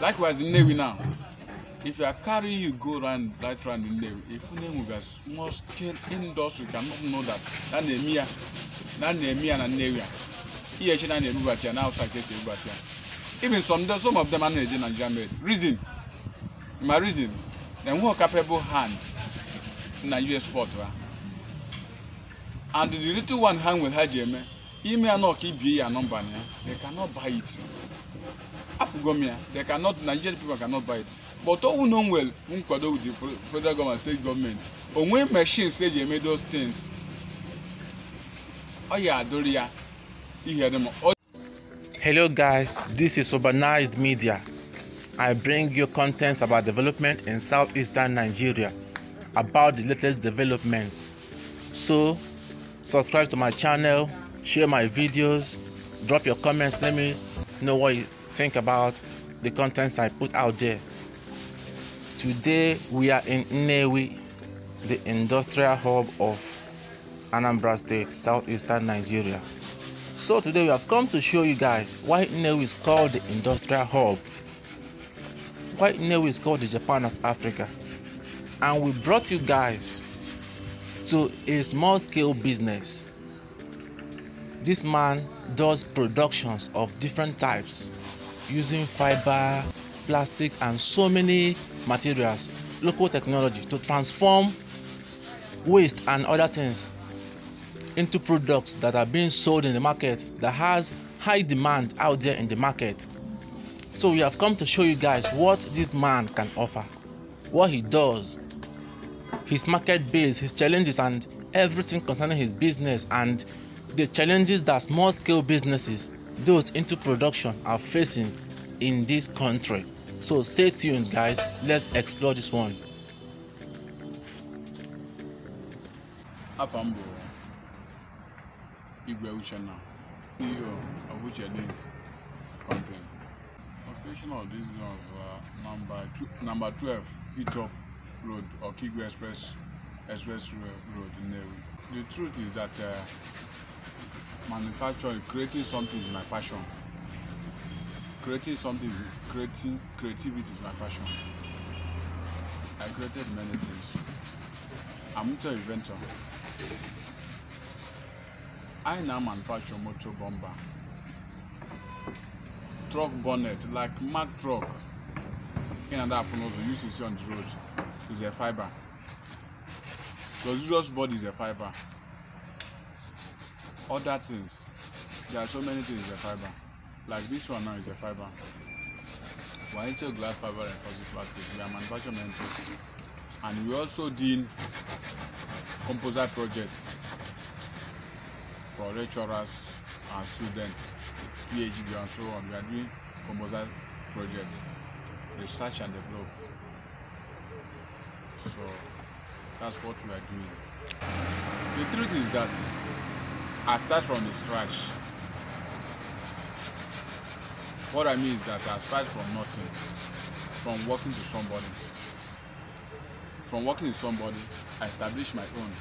likewise nnewi now if you are carry you go round right round nnewi you na enwega small scale industry cannot know that na na-eme ya na na-eme ya na nnewi a ihe chi na na-ebubata ya na hausa ka esi ebubata ya even some days some of them anaghị eje Nigeria made reason my reason dem enweghị capable hand na US port ha and the little one hand nwere ha ji eme ime ya na ọka ibie ya nọmba na ya they cannot buy it afugomia they cannot nigerian people cannot buy it but owu know well nkwado with the federal government state government onwe machines eji eme those things ọ ya adịrị hello guys this is urbanized media i bring you contents about development in southeastern nigeria about the latest developments so subscribe to my channel share my videos drop your comments let me know what you. think about the contents I put out there. Today we are in Newi, the industrial hub of Anambra State, southeastern Nigeria. So today we have come to show you guys why Newi is called the industrial hub, why Newi is called the Japan of Africa. And we brought you guys to a small scale business. This man does productions of different types using fiber, plastic, and so many materials, local technology to transform waste and other things into products that are being sold in the market that has high demand out there in the market. So we have come to show you guys what this man can offer, what he does, his market base, his challenges, and everything concerning his business and the challenges that small scale businesses those into production are facing in this country. So stay tuned, guys. Let's explore this one. Afambo, Igwe of Company. of uh, number, two, number 12, Hitop Road or Kigwe Express, Express Road in The truth is that uh, manufacturing creating something is my passion creating something creating creativity is my passion i created many things i'm into inventor i now manufacture motor bomber truck bonnet like mack truck in and out you used to see on the road is a fiber Because usual body is a fiber other things there are so many things in fiber like this one now is a fiber we are glass fiber reinforcing plastic we are manufacturing mentos and we also did composite projects for lecturers and students phd and so on we are doing composite projects research and develop so that's what we are doing the truth is that I start from the scratch. What I mean is that I start from nothing, from working to somebody. From working with somebody, I establish my own.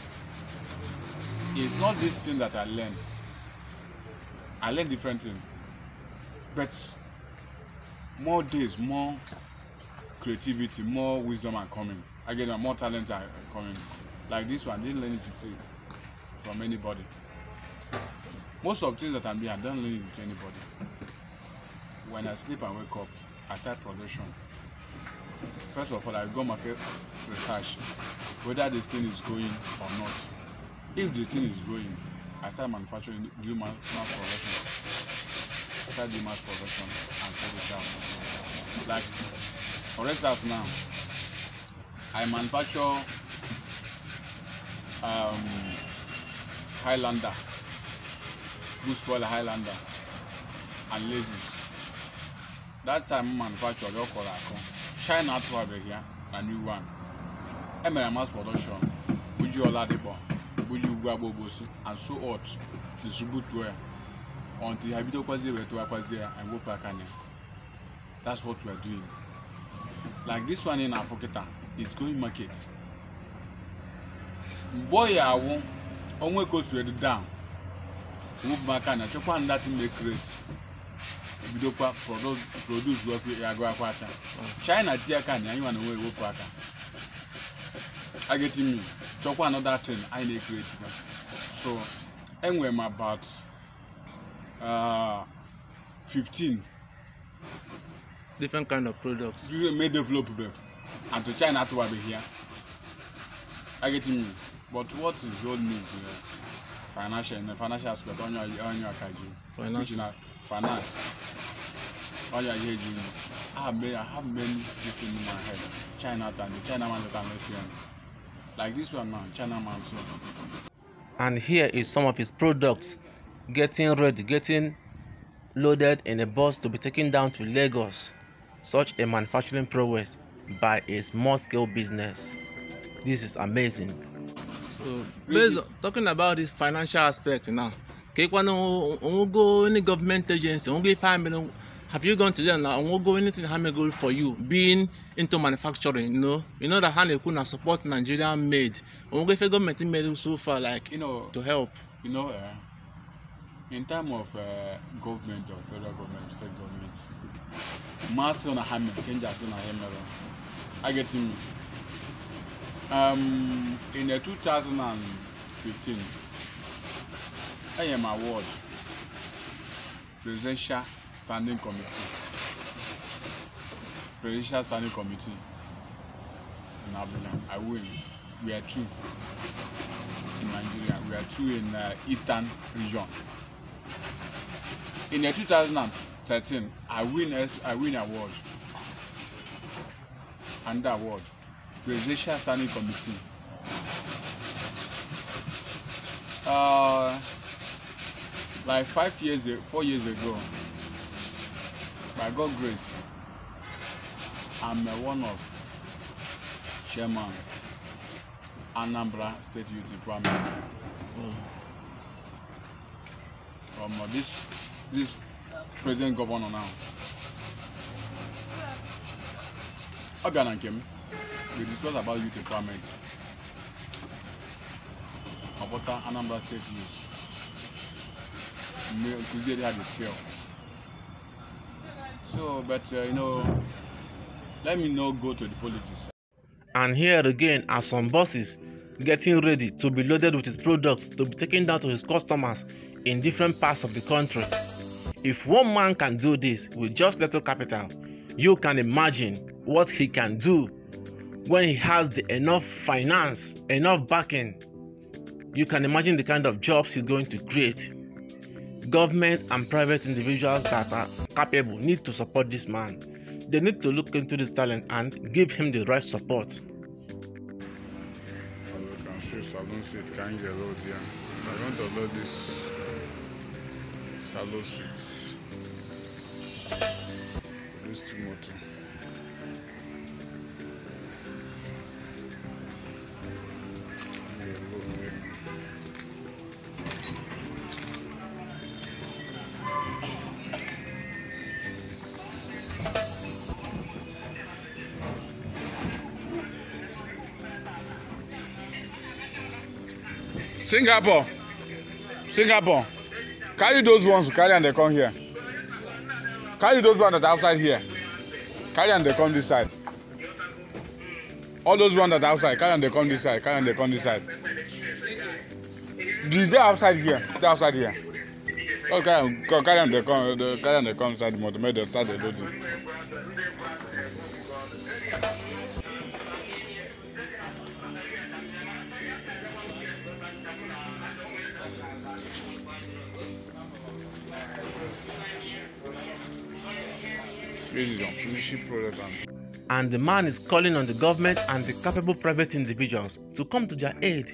It's not this thing that I learn. I learn different things. But more days, more creativity, more wisdom are coming. Again, more talent are coming. Like this one, I didn't learn it from anybody most of things that i'm doing i don't learn it with anybody when i sleep and wake up i start progression. first of all i go market research whether this thing is going or not if the thing is going i start manufacturing do mass mass production i start do mass production and sell it out like for instance now i manufacture um highlander bushballer highlander and levies that time manufacture ọyọ kọrọ akọ china atụ here na new one emere mass production buji ọladipo buji ugwu agbogbosi and so ot distribute well until ha bidokwazie wee tụwakwazie ya and go back ya that's what we are doing like this one in afọ it's going market Boy, I ya only goes ka o down move back and achekwa na that make rate ebidokwa produce wọkụ agụ akwa aka china tie aka na anyị nwa na nwe ewepụ aka ageti mmiri chọkwa another thing anyị na-ekreti kwa so enwe m about uh, 15 different kind of products may develop them and to china atụwabeghị ya ageti mmiri but what is your old news you financial in the financial aspect on your on your kaji finance i have been in my head china the china man that i like this one now china man too and here is some of his products getting ready getting loaded in a bus to be taken down to lagos such a manufacturing prowess by a small scale business this is amazing So based on, talking about this financial aspect now, Kekwana go any government agency, give five million have you gone to them now? go anything How many hamego for you being into manufacturing, you know? You know that Hane Kuna support Nigerian made. Ongo if government made so far like you know to help. You know, uh, in time of uh, government or federal government, state government, mass on a hammer, can just on a I get him um, in the 2015 I AM award presidential standing committee presidential standing committee in Abidjan I win we are two in Nigeria we are two in uh, eastern region in the 2013 I win I win award under award Presidential Standing Committee. Uh, like five years ago, four years ago, by God's grace, I'm a one of chairman Anambra State Youth Department. From uh, this this President governor now. Okay, thank you we discuss about youth empowerment Abota Anambra State youth Kuziere had a spell so but uh, you know let me not go to the politics. and here again are some buses getting ready to be loaded with his products to be taken down to his customers in different parts of the country. If one man can do this with just little capital, you can imagine what he can do when he has the enough finance, enough backing, you can imagine the kind of jobs he's going to create. Government and private individuals that are capable need to support this man. They need to look into this talent and give him the right support. As you can see Salon seat carrying get load here. I want to load this Salon seats. This Timothy. singapore singapore carry those ones carry and they come here carry those ones that are outside here carry and they come this side all those ones that are outside carry and they come this side carry and they come this side the dey outside here They outside here Okay. carry and they come carry and they come inside the motor make start dey load And the man is calling on the government and the capable private individuals to come to their aid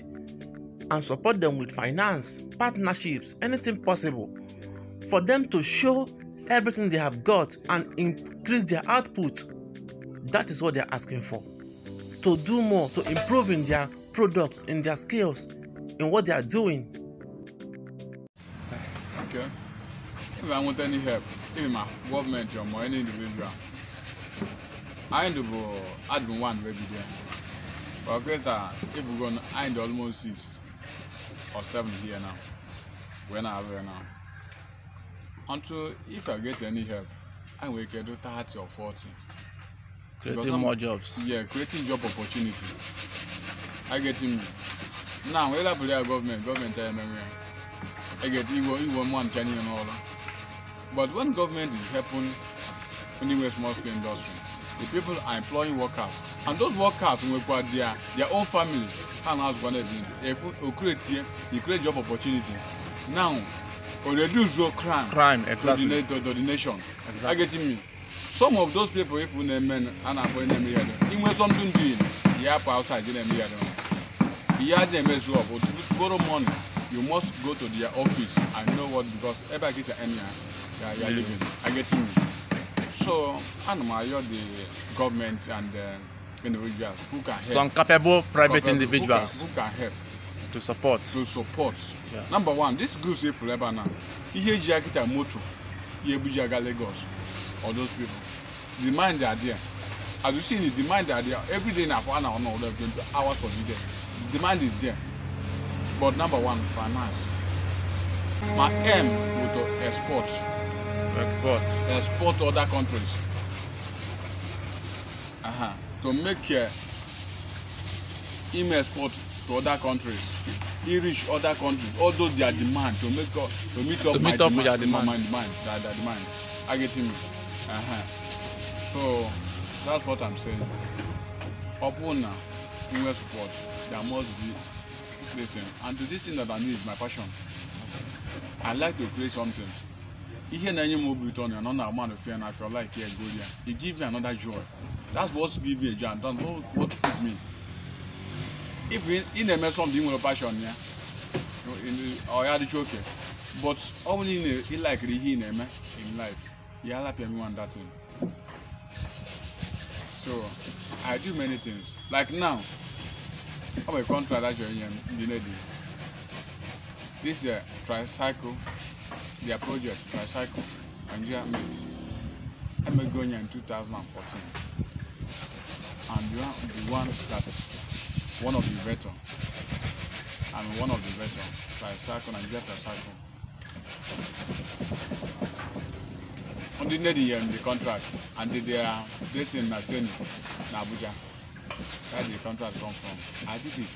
and support them with finance, partnerships, anything possible for them to show everything they have got and increase their output. That is what they are asking for. To do more, to improve in their products, in their skills, in what they are doing. Okay. If I want any help, him a gọọmenti ọmọ ẹni ndụmọ ebi a anyị ndụ bụ adụm wan wee bido ọkịta ebugo anyị dị almost six or seven here now wee na-abụ ya now until if i get any help i will get do thirty or forty. creating more jobs. yeah creating job opportunity i get him now wey labule our government government tell me i get igbo igbo man chani and all that. But when government is helping anyway small scale industry, the people are employing workers. And those workers will require their, their own families. And as one if you create here, you create job opportunities. Now, or reduce your crime, crime exactly. to, the, to the nation. Exactly. Are getting me? Some of those people, if you men, and I'm going to name them, even something doing, the app outside, you name them. You have them as well, but borrow money you must go to their office and know what because ebe a kita enya uh, ya ya living i get you. so ana m ayọ the government and uh, individuals who can help some capable private capable, individuals who can, who can help to support to support yeah. number one this goods efu ebe na ihe eji akita moto ihe ebuji aga lagos all those people demand are there as you see the demand are there every day na for an hour na all of them hours for the day demand is there but number one finance my aim was to export export export to other countries uh -huh. to make uh, him export to other countries he reach other countries although their demand to make up to meet up to my meet up demand, with demand. my demand their, their demand i get him uh -huh. so that's what i'm saying Open na us support there must be person and to this thing that I know is my passion. I like to play something. Ihe na-enye m obi ụtọ na ọ na-agba na ofe I feel like yeah, go there. It give me another joy. That's what give me a joy and that's what, what keep me. If ị na-eme something nwere passion ya, ọ oh, ya dịcha oke. But ọ bụrụ ị likiri ihe ị na-eme in life, ya help me one that thing. So I do many things. Like now, ọ bụ kọntra dajọ ihe ndị na-edi this year tricycle their project tricycle nigeria meet emego onye in 2014 and you are the one that one of the veteran And one of the veteran tricycle nigeria tricycle ndị nne dị yere m the contract and they are dressing na seni na abuja Where did the contract come from? I did it.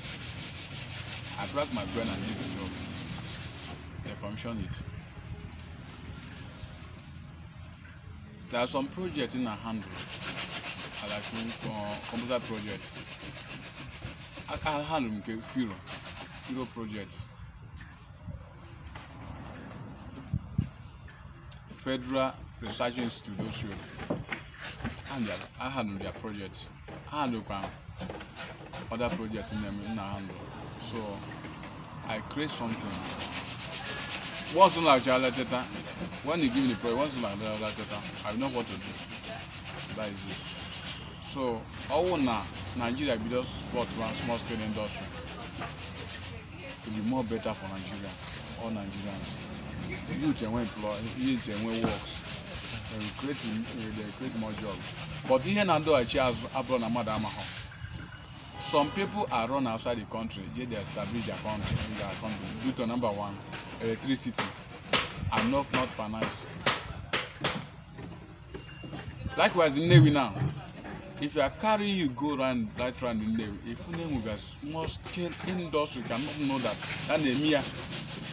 I cracked my brain and did the job. They commissioned it. There are some projects in our handle, like uh, computer project. I, I handle nke few, projects. Federal Research Institute, and I handle their projects handle kwan um, other project na mi na handle so i create something once una jala teta when you give me the project once una jala teta i know what to do that is it so ọwụ na nigeria just sport one small scale industry to be more better for nigeria all nigerians youth enwe employ youth enwe works Eh, create more jobs but ihe na ndọghachi azụ abụrụ na mmadụ amaghọ some people are run outside the country they dey establish their country in their country due to number one electricity and not not finance likewise nnewi now if you are carrying you go round right round nnewi if nnewi ga small scale industry cannot know that that na-eme ya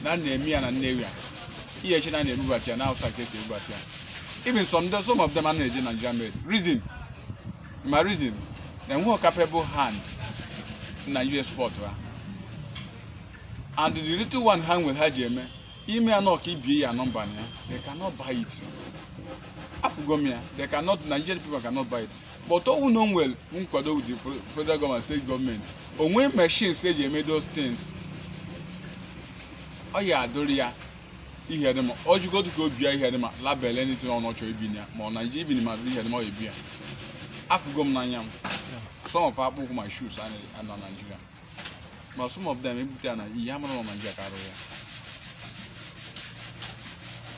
na na-eme ya na nnewi a ihe echi na na-ebubata ya na outside ka esi ebubata ya even some some of them are not Nigerian made. Reason, my reason, they who capable hand in a US sport, right? and the little one hand with her jeme, ime anọ ka ibie ya na ya, they cannot buy it. Afụgo m they cannot, Nigerian people cannot buy it. But owu no nwere nkwado with the federal government, state government, onwe machines eji eme those things, ọ ya adụrụ ya. ihe dị ma ojigodu ka o bia ihe dị ma label anything ọ nọchọ ibi ya ma ọ na nje ibi ma ihe dị ma ọ ebi ya afụgo m n'anya m some of akpụkwụ my shoes a na Nigeria ma some of them ebute ya na ihe amara na Nigeria ka arụ ya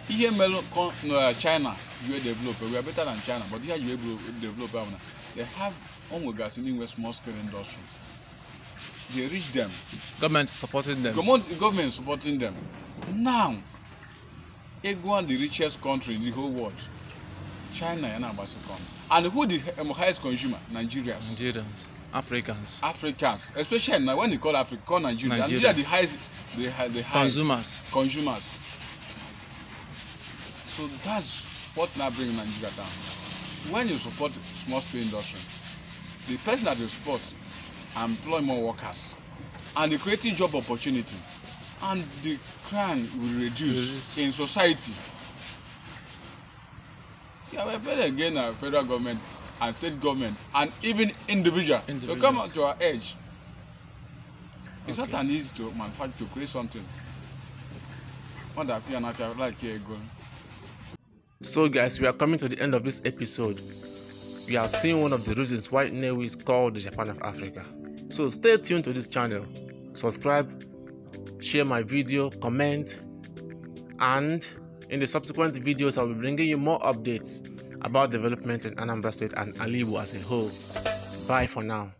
ihe mere uh, China wee develop we are better than China but ihe ji develop ahụ na they have onwegasị n'inwe small scale industry they reach them government supporting them government supporting them now ego the richest country in the whole world china yana agbasakon and who the um, highest consumer nigerians nigerians africans africans especially na when they call africa call nigeria nigeria, the highest the, the highest consumers consumers so that's what na bring nigeria down when you support small scale industry the person that you support employ more workers and e creating job opportunity and the crime will reduce in society. See, I better again our federal government and state government and even individual to come out to our edge. It's okay. not an easy to manufacture to create something. What I feel and like here going. So guys, we are coming to the end of this episode. We have seen one of the reasons why Newe is called the Japan of Africa. So stay tuned to this channel, subscribe, share my video, comment, and in the subsequent videos, I'll be bringing you more updates about development in Anambra State and Alibu as a whole. Bye for now.